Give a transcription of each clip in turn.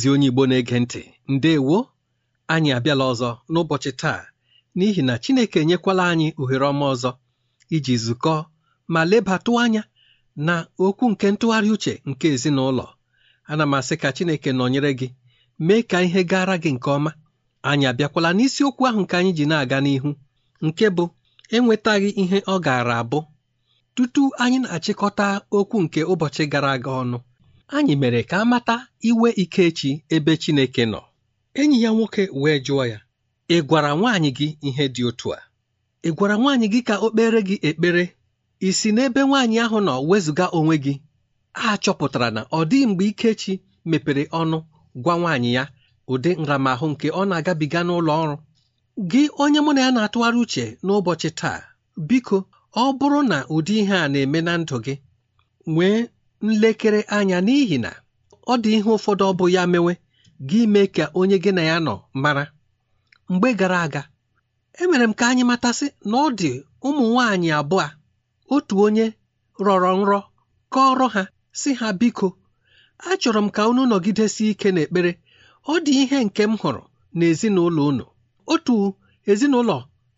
ezi onye Igbo na-ege ntị ndewo anyị abịala ọzọ n'ụbọchị taa n'ihi na Chineke enyekwala anyị ohere ọma ọzọ iji zukọ ma lebatụ anya na okwu nke ntụgharị uche nke ezinụlọ ana m asị ka Chineke nọnyere gị mee ka ihe gara gị nke ọma anyị abịakwala n'isiokwu ahụ nke anyị ji na-aga n'ihu nke bụ enwetaghị ihe ọ gaara abụ tutu anyị na-achịkọta okwu nke ụbọchị gara aga ọnụ anyị mere ka a mata iwe Ikechi ebe Chineke nọ enyi ya nwoke wee jụọ ya ị gwara nwaanyị gị ihe dị otu a ị gwara nwaanyị gị ka o kpere gị ekpere isi n'ebe nwaanyị ahụ nọ wezụga onwe gị a chọpụtara na ọ dịghị mgbe Ikechi mepere ọnụ gwa nwaanyị ya ụdị nramahụ nke ọ na-agabiga n'ụlọ ọrụ gị onye mụ na ya na-atụgharị uche n'ụbọchị taa biko ọ bụrụ na ụdị ihe a na-eme na ndụ gị nwee nlekere anya n'ihi na ọ dị ihe ụfọdụ ọ bụ ya mewe gị mee ka onye gị na ya nọ mara mgbe gara aga emere m ka anyị matasị na ọ dị ụmụ nwaanyị abụọ otu onye rọrọ nrọ ọrụ ha si ha biko achọrọ m ka unu nọgidesi ike n'ekpere ọ dị ihe nke m hụrụ na ezinụlọ unu otu ezinụlọ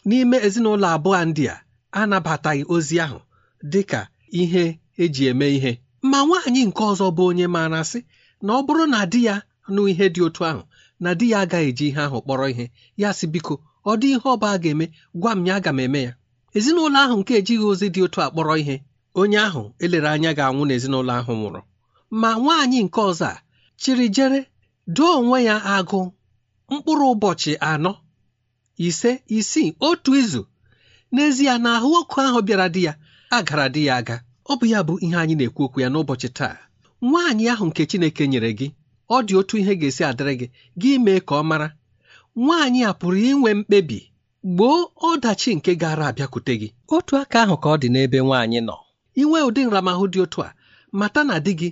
n'ime ezinụlọ abụọ ndị a anabataghị ozi ahụ dị ka ihe eji eme ihe ma nwaanyị nke ọzọ bụ onye maara sị na ọ bụrụ na di ya nụ ihe dị otu ahụ na di ya agaghị eji ihe ahụ kpọrọ ihe ya sị biko ọ dị ihe ọba a ga-eme gwa m ya aga m eme ya ezinụlọ ahụ nke ejighị ozi dị otu a kpọrọ ihe onye ahụ elere anya ga-anwụ n'ezinụlọ ahụ nwụrụ ma nwaanyị nke ọzọ a chịrị jere doo onwe ya agụ mkpụrụ ụbọchị anọ ise isii otu izu n'ezie na ahụ ọkụ ahụ bịara di ya agara di ya aga ọ bụ ya bụ ihe anyị na-ekwu okwu ya n'ụbọchị taa nwaanyị ahụ nke Chineke nyere gị ọ dị otu ihe ga-esi adịrị gị gị mee ka ọ mara nwaanyị a pụrụ inwe mkpebi gboo ọdachi nke gara abịakwute gị otu aka ahụ ka ọ dị n'ebe nwaanyị nọ inwe ụdị nramahụ dị otu a mata na di gị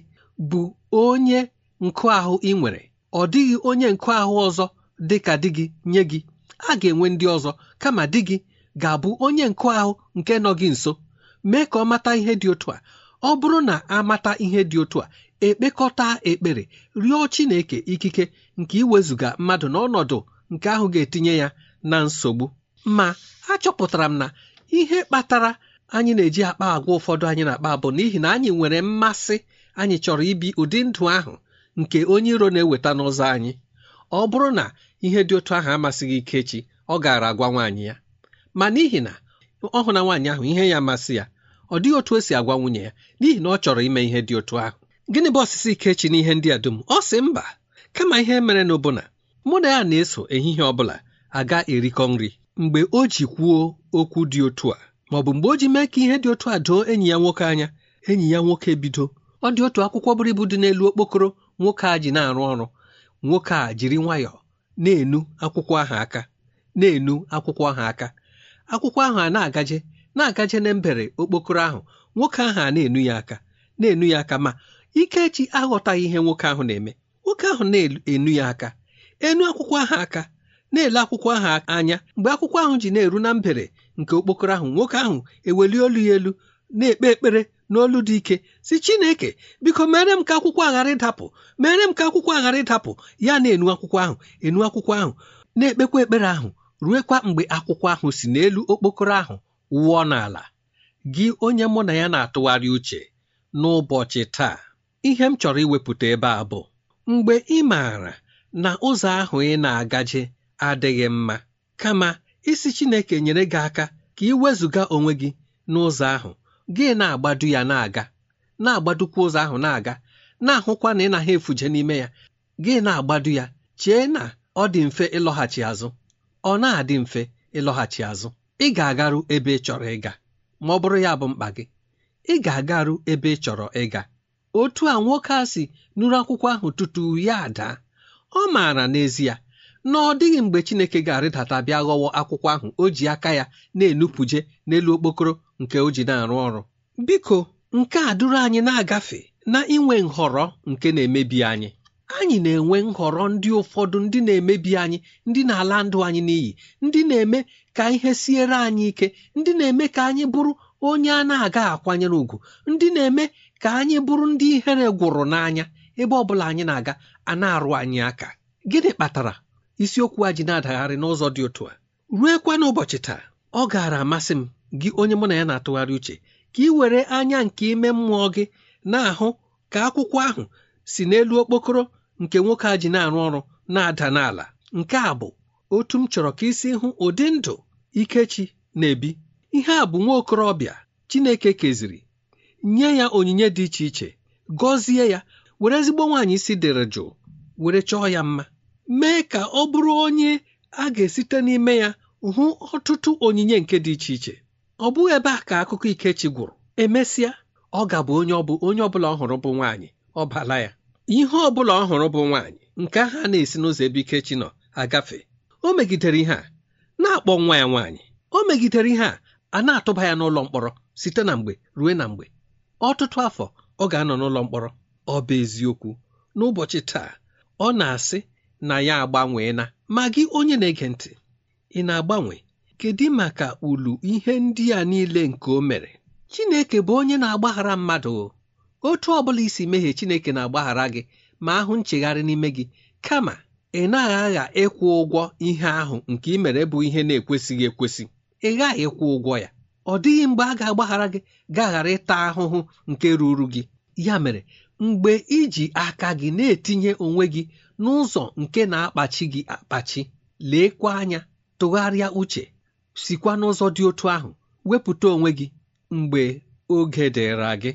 bụ onye nkụ ahụ ị nwere ọ dịghị onye nkụ ahụ ọzọ dị ka di gị nye gị a ga-enwe ndị ọzọ kama di gị ga-abụ onye nkụ ahụ nke nọ gị nso mee ka ọ mata ihe dị otu a ọ bụrụ na amata ihe dị otu a ekpekọta ekpere rịọ Chineke ikike nke iwezuga mmadụ n'ọnọdụ nke ahụ ga-etinye ya na nsogbu ma achọpụtara m na ihe kpatara anyị na-eji akpa agwa ụfọdụ anyị na-akpa bụ n'ihi na anyị nwere mmasị anyị chọrọ ibi ụdị ndụ ahụ nke onye iro na-eweta n'ụzọ anyị ọ bụrụ na ihe dị otu ahụ amasịghị Ikechi ọ gaara agwa nwaanyị ya ma n'ihi na ọ hụ na nwaanyị ahụ ihe ya amasị ya ọ dịghị otu o si agwa nwunye ya n'ihi na ọ chọrọ ime ihe dị otu ahụ gịnị bụ ọsịsị Ikechi n'ihe ndị a dum ọ sị mba kama ihe mere n'ụbụna mụ na ya na-eso ehihie ọ bụla aga erikọ nri mgbe o ji kwuo okwu dị otu a ma ọ bụ mgbe o ji mee ka ihe dị otu a doo enyi ya nwoke anya enyi ya nwoke bido? ọ dị otu akwụkwọ buru ibu dị n'elu okpokoro nwoke a ji na-arụ ọrụ nwoke a jiri nwayọọ na-enu akwụkwọ ahụ aka na-enu akwụkwọ ahụ aka akwụkwọ ahụ a na-agaje na-agaje na mbere okpokoro ahụ nwoke ahụ a na-enu ya aka na-enu ya aka ma Ikechi aghọtaghị ihe nwoke ahụ na-eme nwoke ahụ na-enu ya aka enu akwụkwọ ahụ aka na-ele akwụkwọ ahụ anya mgbe akwụkwọ ahụ ji na-eru na mbere nke okpokoro ahụ nwoke ahụ eweli olu ya elu na-ekpe ekpere n'olu dị ike si Chineke biko mere m ka akwụkwọ aghara ịdapụ mere m ka akwụkwọ aghara ịdapụ ya na-enu akwụkwọ ahụ enu akwụkwọ ahụ na-ekpekwa ekpere ahụ ruekwa mgbe akwụkwọ ahụ si n'elu okpokoro ahụ wụọ n'ala gị onye mụ na ya na-atụgharị uche n'ụbọchị taa ihe m chọrọ iwepụta ebe a bụ mgbe ị maara na ụzọ ahụ ị na-agaje adịghị mma kama isi Chineke nyere gị aka ka ị wezụga onwe gị n'ụzọ ahụ gị na-agbadu ya na-aga na-agbadukwa ụzọ ahụ na-aga na-ahụkwa na ị naghị efuje n'ime ya gị na-agbadu ya chee na ọ dị mfe ịlọghachi azụ ọ na-adị mfe ịlọghachi azụ ị ga-agaru ebe ị chọrọ ịga ma ọ bụrụ ya bụ mkpa gị ị ga-agaru ebe ị chọrọ ịga otu a nwoke a si nụrụ akwụkwọ ahụ tutu ya daa ọ maara n'ezie na ọ dịghị mgbe Chineke ga-arịdata bịa ghọwa akwụkwọ ahụ o ji aka ya na-enupụje n'elu okpokoro nke o ji na-arụ ọrụ biko nke a duru anyị na-agafe na inwe nhọrọ nke na-emebi anyị anyị na-enwe nhọrọ ndị ụfọdụ ndị na-emebi anyị ndị na-ala ndụ anyị n'iyi ndị na-eme ka ihe siere anyị ike ndị na-eme ka anyị bụrụ onye a na-aga akwanyere ùgwù ndị na-eme ka anyị bụrụ ndị ihere gwụrụ n'anya ebe ọ bụla anyị na-aga a na-arụ anyị aka gịnị kpatara isiokwu a ji na-adagharị n'ụzọ dị otu a ruekwa n'ụbọchị taa ọ gaara amasị m gị onye mụ na ya na-atụgharị uche ka ị were anya nke ime mmụọ gị na-ahụ ka akwụkwọ ahụ si n'elu okpokoro nke nwoke a ji na-arụ ọrụ na-ada n'ala nke a bụ otu m chọrọ ka isi hụ ụdị ndụ ikechi na-ebi ihe a bụ nwa okorobịa Chineke keziri nye ya onyinye dị iche iche gọzie ya were ezigbo nwaanyị isi dịrị jụụ were chọọ ya mma mee ka ọ bụrụ onye a ga-esite n'ime ya hụ ọtụtụ onyinye nke dị iche iche ọ bụghị ebe a ka akụkọ ikechi gwụrụ emesịa ọ ga-abụ onye ọ bụ onye ọ bụla ọ hụrụ bụ nwaanyị ọ bala ya ihe ọ bụla ọ hụrụ bụ nwaanyị nke ahụ a na-esi n'ụzọ ebe Ikechi nọ agafe o megidere ihe a na-akpọ nwa ya nwaanyị o megidere ihe a a na-atụba ya n'ụlọ mkpọrọ site na mgbe ruo na mgbe ọtụtụ afọ ọ ga-anọ n'ụlọ mkpọrọ ọ bụ eziokwu n'ụbọchị taa ọ na-asị na ya agbanwee na ma gị onye na-ege ntị ị na-agbanwe kedu maka ulu ihe ndị a niile nke o mere Chineke bụ onye na-agbaghara mmadụ otu ọ bụla isi mehie chineke na-agbaghara gị ma ahụ nchegharị n'ime gị kama ị naghị agha ịkwụ ụgwọ ihe ahụ nke ị mere bụ ihe na-ekwesịghị ekwesị ị ghaghị ịkwụ ụgwọ ya ọ dịghị mgbe a ga-agbaghara gị gaghara ịta ahụhụ nke ruru gị ya mere mgbe iji aka gị na-etinye onwe gị n'ụzọ nke na-akpachi gị akpachi leekwa anya tụgharịa uche sikwa n'ụzọ dị otu ahụ wepụta onwe gị mgbe oge dịra gị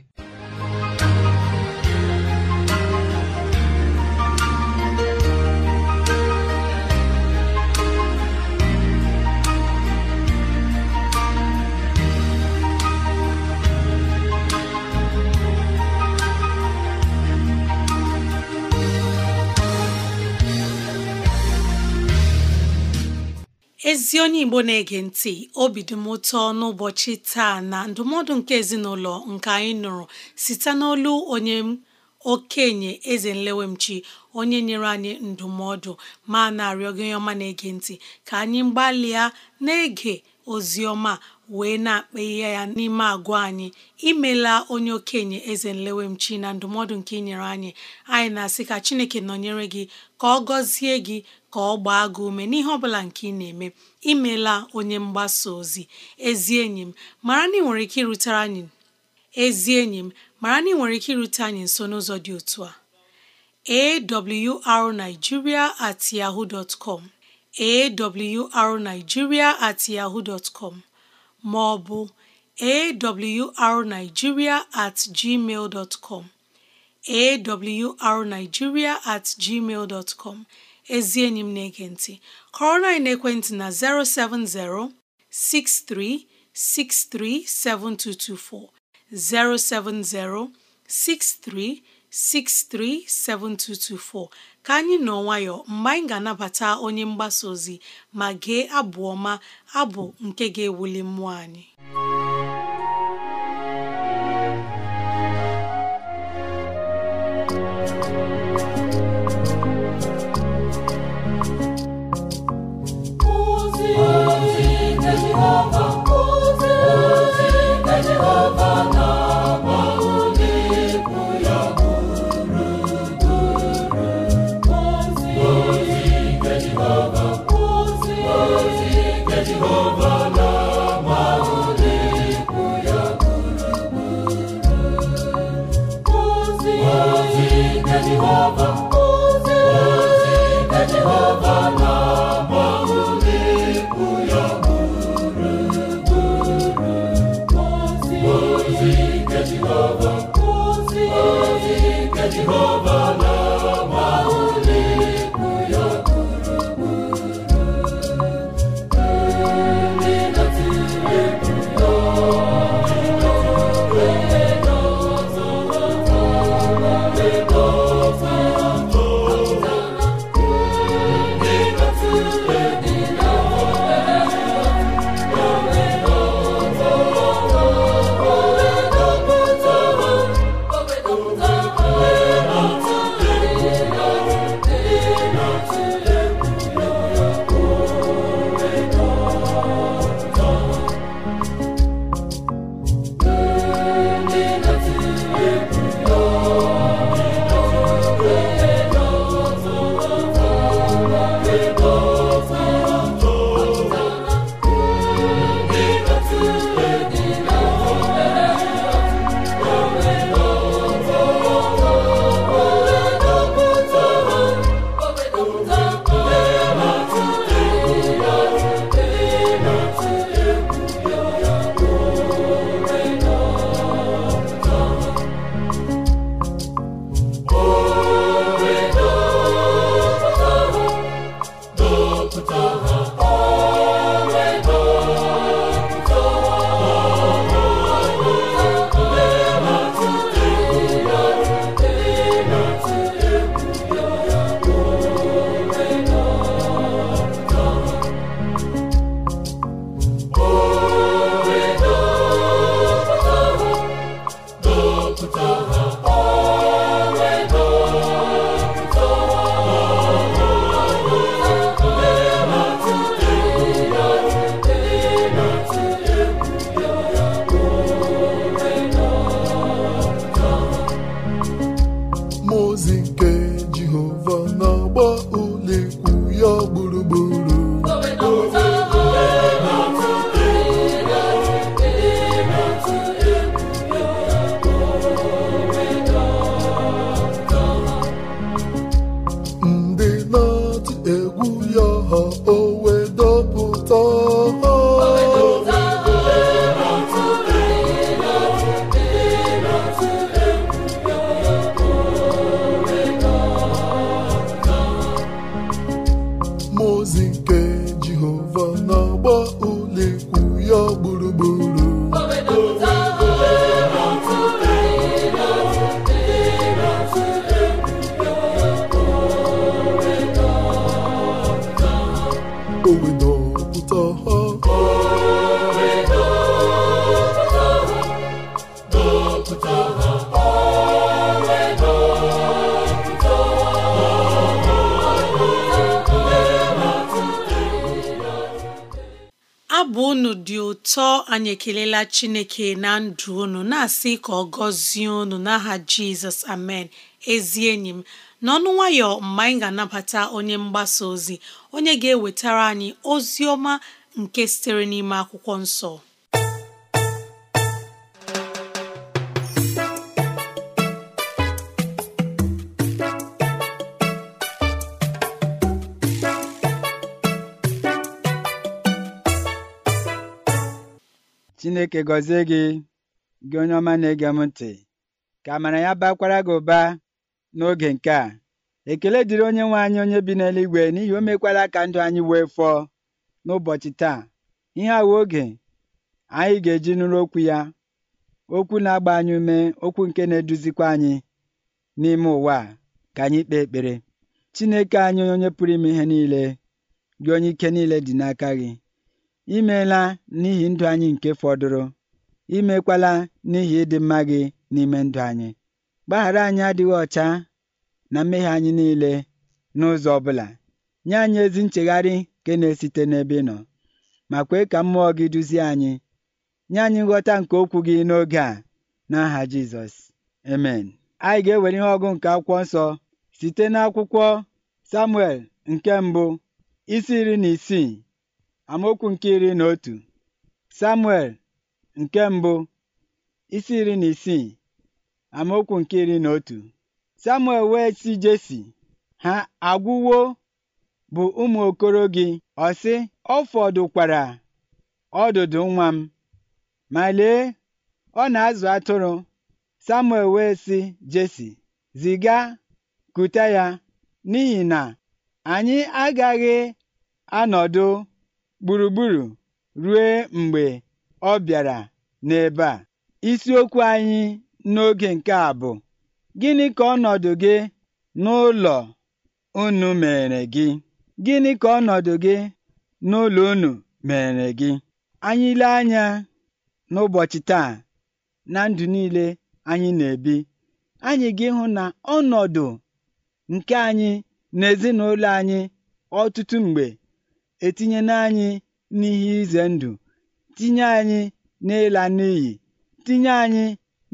ezi onye igbo na-ege ntị obi dị m ụtọ n'ụbọchị taa na ndụmọdụ nke ezinụlọ nke anyị nụrụ site n'olu onye okenye eze nlewemchi onye nyere anyị ndụmọdụ ma na-arịọ gị ọma na-ege ntị ka anyị gbalịa na-ege ozi ọma wee na akpa ihe ya n'ime agwa anyị imela onye okenye eze nlewemchi na ndụmọdụ nke inyere anyị anyị na-asị ka chineke nọnyere gị ka ọ gọzie gị ka ọ gbaa gị ume n'ihe ọbụla nke ị na-eme imela onye mgbasa ozi ezi enyi m mara na ike anyị na ị nwere ike irute anyị nso n'ụzọ dị otu a awrnigeria at yahoo dot com awrnigeria at yahoo dot ma ọ bụ awrnigeria at gmail dot com awrnigeria at gmail dot com ezi enyi m na-ege ntị kọrọ na ekwentị na 070 6363 7224 070 6363 7224 ka anyị nọ nwayọọ mgbe anyị ga-anabata onye mgbasa ozi ma gee abụ ọma abụ nke ga-ewuli mmụọ anyị abụ unu dị ụtọ anyị ekelela Chineke na ndụ unu na-asị ka ọ gọzie unu n'aha Jizọs amen ezi enyi m n'ọnụ nwayọ mgbe anyị ga-anabata onye mgbasa ozi onye ga-ewetara anyị ozi ọma nke sitere n'ime akwụkwọ nsọ Chineke gọzie gị gị onye ọma na-ege m ntị ka amara ya bakwara gị ụba n'oge nke a ekele dịrị onye nwe anyị onye bi n'eluigwe n'ihi o mekwara ka ndụ anyị wee fọọ n'ụbọchị taa ihe awa oge anyị ga-eji nụrụ okwu ya okwu na-agba anyị ume okwu nke na-eduzikwa anyị n'ime ụwa ka anyị kpee ekpere Chineke anyị onye pụrụ ime ihe niile gị onye ike niile dị n'aka gị imeela meela n'ihi ndụ anyị nke fọdụrụ imekwala mekwala n'ihi ịdị mma gị n'ime ndụ anyị gbaghara anyị adịghị ọcha na mmehie anyị niile n'ụzọ ọ bụla nye anyị ezi nchegharị nke na-esite n'ebe ị nọ ma kwee ka mmụọ gị duzie anyị nye anyị nghọta nke okwu gị n'oge a n'aha Jizọs emen anyị ga-ewere ihe ọgụ nke akwụkwọ nsọ site n'akwụkwọ Samuel nke mbụ isi iri na isii amaokwu nke iri na otu samuel nke mbụ isi iri na isii amaokwu nke iri na otu samuel wee sị jesi ha agwụwo bụ ụmụ okoro gị ọsị. ọ fọdụkwara ọdụdụ nwa m ma lee ọ na-azụ atụrụ samuel wee sị jesi ziga kute ya n'ihi na anyị agaghị anọdụ gburugburu ruo mgbe ọ bịara n'ebe a isiokwu anyị n'oge nke a bụ gịnị ka ọnọdụ gị n'ụlọ unu mere gị gịnị ka ọnọdụ gị n'ụlọ unu mere gị anyị ile anya n'ụbọchị taa na ndụ niile anyị na-ebi anyị ga-ịhụ na ọnọdụ nke anyị na ezinụlọ anyị ọtụtụ mgbe etinyela anyị n'ihe ize ndụ tinye anyị n'ịla n'iyi tinye anyị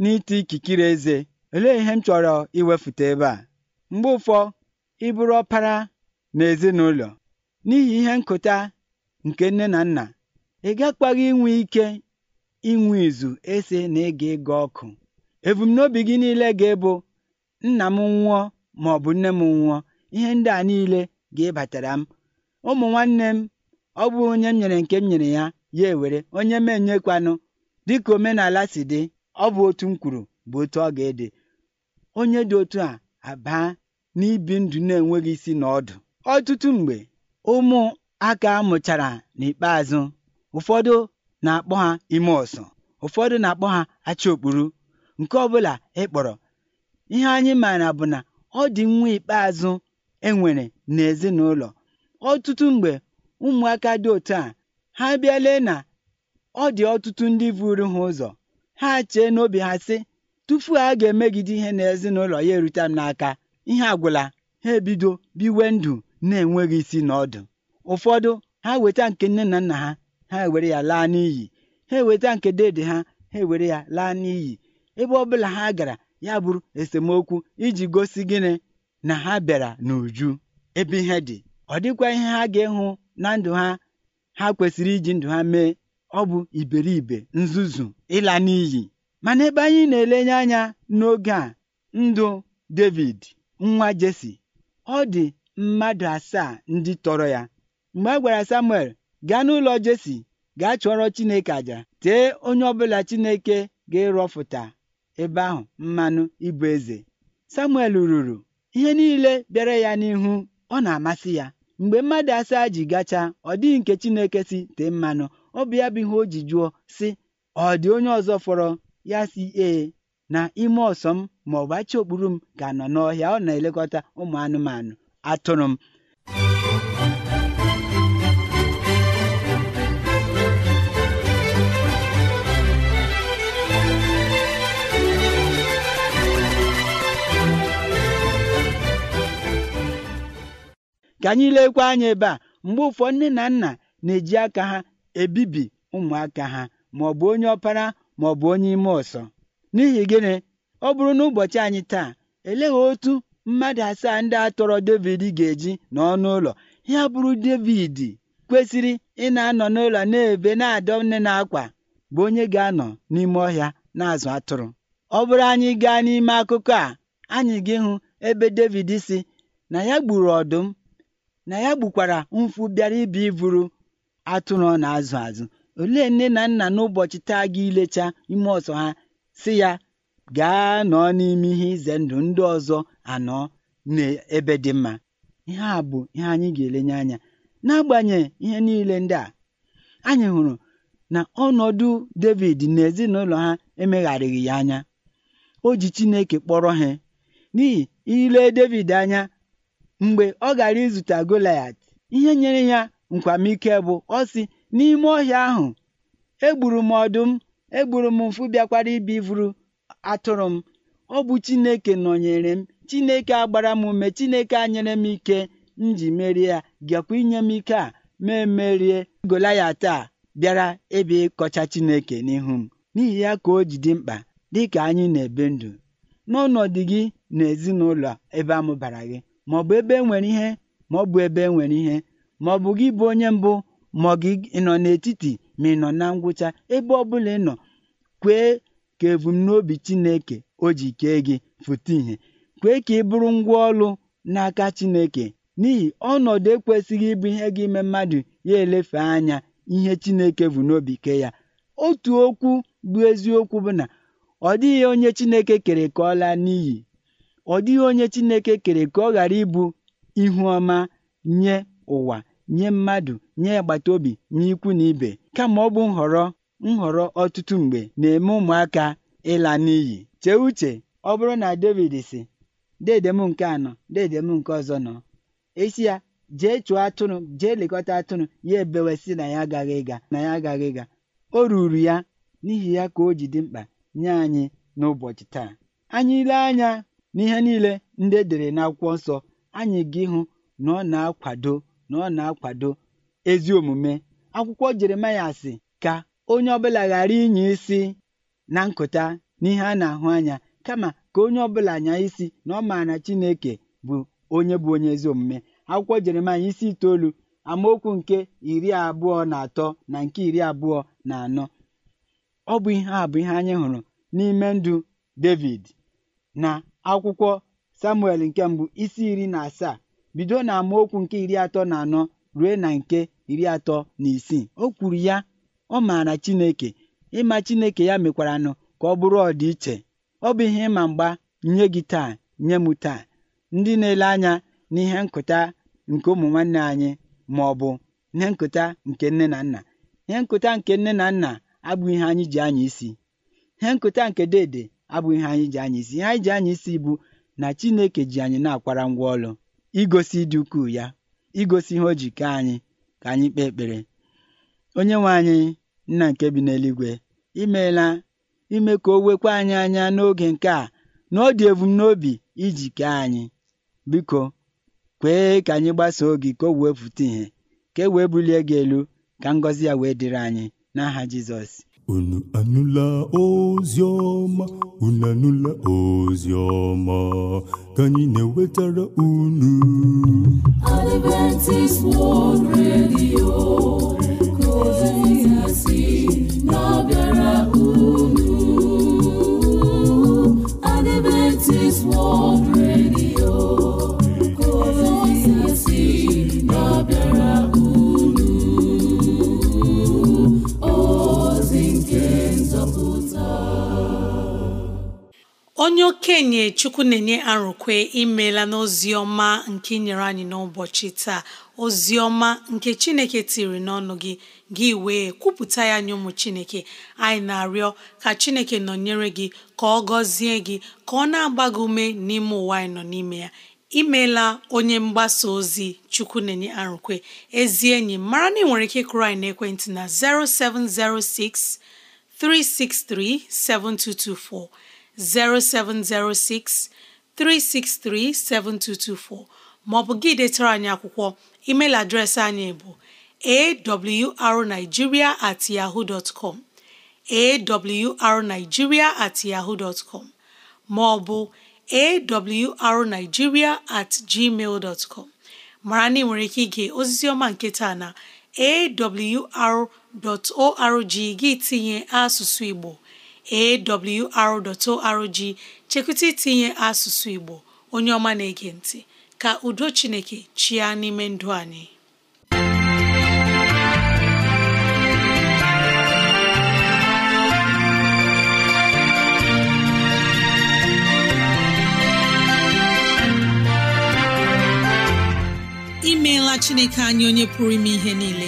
n'ite ikikere eze olee ihe m chọrọ iwefute ebe a mgbe ụfọ ịbụrụ ọpara na ezinụlọ n'ihi ihe nkụta nke nne na nna ị gakwaghị inwe ike inwe izu ese na ịga ịga ọkụ ebumnobi gị niile ga-ebu nna m nwụọ ma ọ bụ nne m nwụọ ihe ndị a niile ga-ịbatara m ụmụ nwanne m ọ bụ onye m nyere nke m nyere ya ya ewere onye m enyekwanụ dịka omenala si dị ọ bụ otu m kwuru bụ otu ọ ga-ede onye dị otu a abaa n'ibi ndụ na-enweghị isi na ọdụ ọtụtụ mgbe ụmụ aka mụchara n'ikpeazụ ụfọdụ na-akpọ ha ime ọsọ ụfọdụ na-akpọ ha acha okpuru nke ọbụla ịkpọrọ ihe anyị maara bụ na ọ dị nwa ikpeazụ enwere n'ezinụlọ ọtụtụ mgbe ụmụaka dị otu a ha bịa na ọ dị ọtụtụ ndị vụrụ ha ụzọ ha chee n'obi ha sị tupu a ga-emegide ihe ezinụlọ ya erute m n'aka ihe agwụla ha ebido biwe ndụ na-enweghị isi na ọdụ ụfọdụ ha weta nke nne na nna ha ha ewere ya laa n'iyi ha eweta nke dede ha ha ewere ya laa n'iyi ebe ọ bụla ha gara ya bụrụ esemokwu iji gosi gịnị na ha bịara n'uju ebe ihe dị ọ dịkwa ihe ha ga-ịhụ na ndụ ha ha kwesịrị iji ndụ ha mee ọ bụ iberibe nzuzu ịla n'iyi mana ebe anyị na-elenye anya n'oge a ndụ David nwa Jesi ọ dị mmadụ asaa ndị tọrọ ya mgbe a gwara Samuel gaa n'ụlọ Jesi gaa chụọrọ Chineke àjà tee onye ọbụla Chineke ga-ịrọfụta ebe ahụ mmanụ ịbụ eze Samuel ruru ihe niile bịara ya n'ihu ọ na-amasị ya mgbe mmadụ asaa ji gacha ọ dịghị nke chineke si tee mmanụ ọ bụ ya bụ ihe o ji jụọ sị ọ dị onye ọzọ fọrọ ya si ee na ime ọsọ m ma ọ bụ achị okpuru m ga-anọ n'ọhịa ọ na-elekọta ụmụ anụmanụ atụrụ m ka anyị lekwa anya ebe a mgbe ụfọdụ nne na nna na-eji aka ha ebibi ụmụaka ha ma ọ bụ onye ọpara ma ọ bụ onye ime ọsọ n'ihi gịnị ọ bụrụ na ụbọchị anyị taa eleghị otu mmadụ asaa ndị a tọrọ David ga-eji n'ọnụ ụlọ ya bụrụ David kwesịrị ị na-anọ n'ụlọ na-ebe na-adọ nne na akwa bụ onye ga-anọ n'ime ọhịa na-azụ atụrụ ọ bụrụ anyị gaa n'ime akụkọ a anyị gị hụ ebe David si na ya gburu ọdụm na ya gbukwara mfu bịara ibi iburu atụrụ ọ na-azụ azụ olee nne na nna n'ụbọchị taa gị ilecha ime ọsọ ha si ya gaa nọ n'ime ihe ize ndụ ndị ọzọ anọ n'ebe dị mma ihe a bụ ihe anyị ga-elenye anya n'agbanyeghị ihe niile ndị a anyị hụrụ na ọnọdụ David na ezinụlọ ha emegharịghị ya anya o ji Chineke kpọrọ ha n'ihi ile David anya Mgbe ọ gara izute Golaịat, ihe nyere ya nkwamike bụ ọ sị, “N'ime ọhịa ahụ, egburu m ọdụm, egburu m mfu bịakwara ibi vuru atụrụ m. Ọ bụ Chineke nọnyere m, Chineke a gbara m ume, Chineke a nyere m ike m ji merie ya, gakwa inye m ike a ma emerie Golaịat a bịara ịbịa ịkọcha Chineke n'ihu m.” N'ihi ya ka o ji dị mkpa dịka anyị na ebe ndụ n'ọnọdụ gị na ezinụlọ ebe amụbara gị bụ ebe enwere ihe ma ọ bụ ebe e nwere ihe bụ e gị bụ onye mbụ ma gị nọ n'etiti ma ị nọ na ngwụcha ebe ọ bụla ị nọ kwee ka ebumnobi Chineke o ji kee gị fụta ìhè kwee ka ị bụrụ ngwa ọlụ n'aka Chineke n'ihi ọnọdụ ekwesịghị ịbụ ihe gị ime mmadụ ya elefe anya ihe Chineke bụ n'obi ke ya otu okwu bụ eziokwu bụ na ọ dịghị onye Chineke kere ka ọ laa n'iyi ọ dịghị onye Chineke kere ka ọ ghara ịbụ ihu ọma nye ụwa nye mmadụ nye agbata obi nye ikwu na ibe kama ọ bụ nhọrọ nhọrọ ọtụtụ mgbe na-eme ụmụaka ịla n'iyi chee uche ọ bụrụ na David si dedem nke anọ dedem nke ọzọ nọ esi ya jee chụọ atụrụ jee lekọta atụrụ ya ebewesị na ya agaghị ịga na ya agaghị ịga o ruru ya n'ihi ya ka o ji dị mkpa nye anyị n'ụbọchị taa anyị ile anya N'ihe niile ndị edere dere n'akwụkwọ nsọ, anyị ga-ịhụ na ọ na-akwado na ọ na-akwado ezi omume. Akwụkwọ Jeremaịa sị ka onye ọbụla ghara inye isi na nkụta n'ihe a na-ahụ anya kama ka onye ọbụla anya isi na ọ maara Chineke bụ onye bụ onye ezi omume. Akwụkwọ Jeremaịa isi itoolu amaokwu nke iri abụọ na atọ na nke iri abụọ na anọ. Ọ bụ ihe a bụ ihe anyị hụrụ n'ime ndụ Devid na akwụkwọ Samuel nke mbụ isi iri na asaa bido na amaokwu nke iri atọ na anọ ruo na nke iri atọ na isii o kwuru ya ọ maara Chineke ịma Chineke ya mekwara nụ ka ọ bụrụ ọdịiche ọ bụ ihe ịma mgba nye gị taa nye m taa ndị na-ele anya n'ihe nkụta nke ụmụ nwanne anyị ma ọ bụ ihe nkụta nke nne na nna ihe nkụta nke nne na nna abụghị ihe anyị ji anya isi ihe nkụta nke dede abụghị ihe anyị ji anya isi ihe anyị ji anya isi bụ na Chineke ji anyị na-akwara ngwa ọlụ igosi ịdị ukwuu ya igosi ihe o ji kee anyị ka anyị kpee ekpere onye nwe anyị nna nke bi n'eluigwe imeela ime ka o wekwa anyị anya n'oge nke a na ọ dị ebumnobi iji kee anyị biko kwee ka anyị gbasoo gị ka o wee pụta ìhè ka e wee bulie gị elu ka ngọzi ya wee dịrị anyị n'aha Jizọs unu anụla ozi ọma unu anụla ozi ọma ka anyị na-ewetara unu Adventist World Radio ka ozi si na-abịara okenye chukwu na-enye arụkwe imeela n'ozi ọma nke nyere anyị n'ụbọchị taa ozi ọma nke chineke tiri n'ọnụ gị gị wee kwupụta ya nye ụmụ chineke anyị na-arịọ ka chineke nọnyere gị ka ọ gọzie gị ka ọ na-agba gị ume n'ime ụwa anyị nọ n'ime ya imeela onye mgbasa ozi chukwu na-enye arụkwe ezi enyi mara na ị nwere ike kụrụ anyị n'ekwentị na 0706 363 7224 0706 363 7224 maọbụ gị detara anyị akwụkwọ email adreesị anyị bụ awrnigeria at yahoo dot com at yahoo dot com maọbụ awrnigeria at gmail dot com mara na ị nwere ike ige ozizi ọma nke taa na awr.org gị tinye asụsụ Igbo awr.org chekwụta itinye asụsụ Igbo onye ọma na-ege ntị ka udo Chineke chịa n'ime ndụ anyị imeela Chineke anyị onye pụrụ ime ihe niile